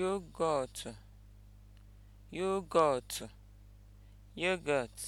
yogọtụ yogọt (yogurt)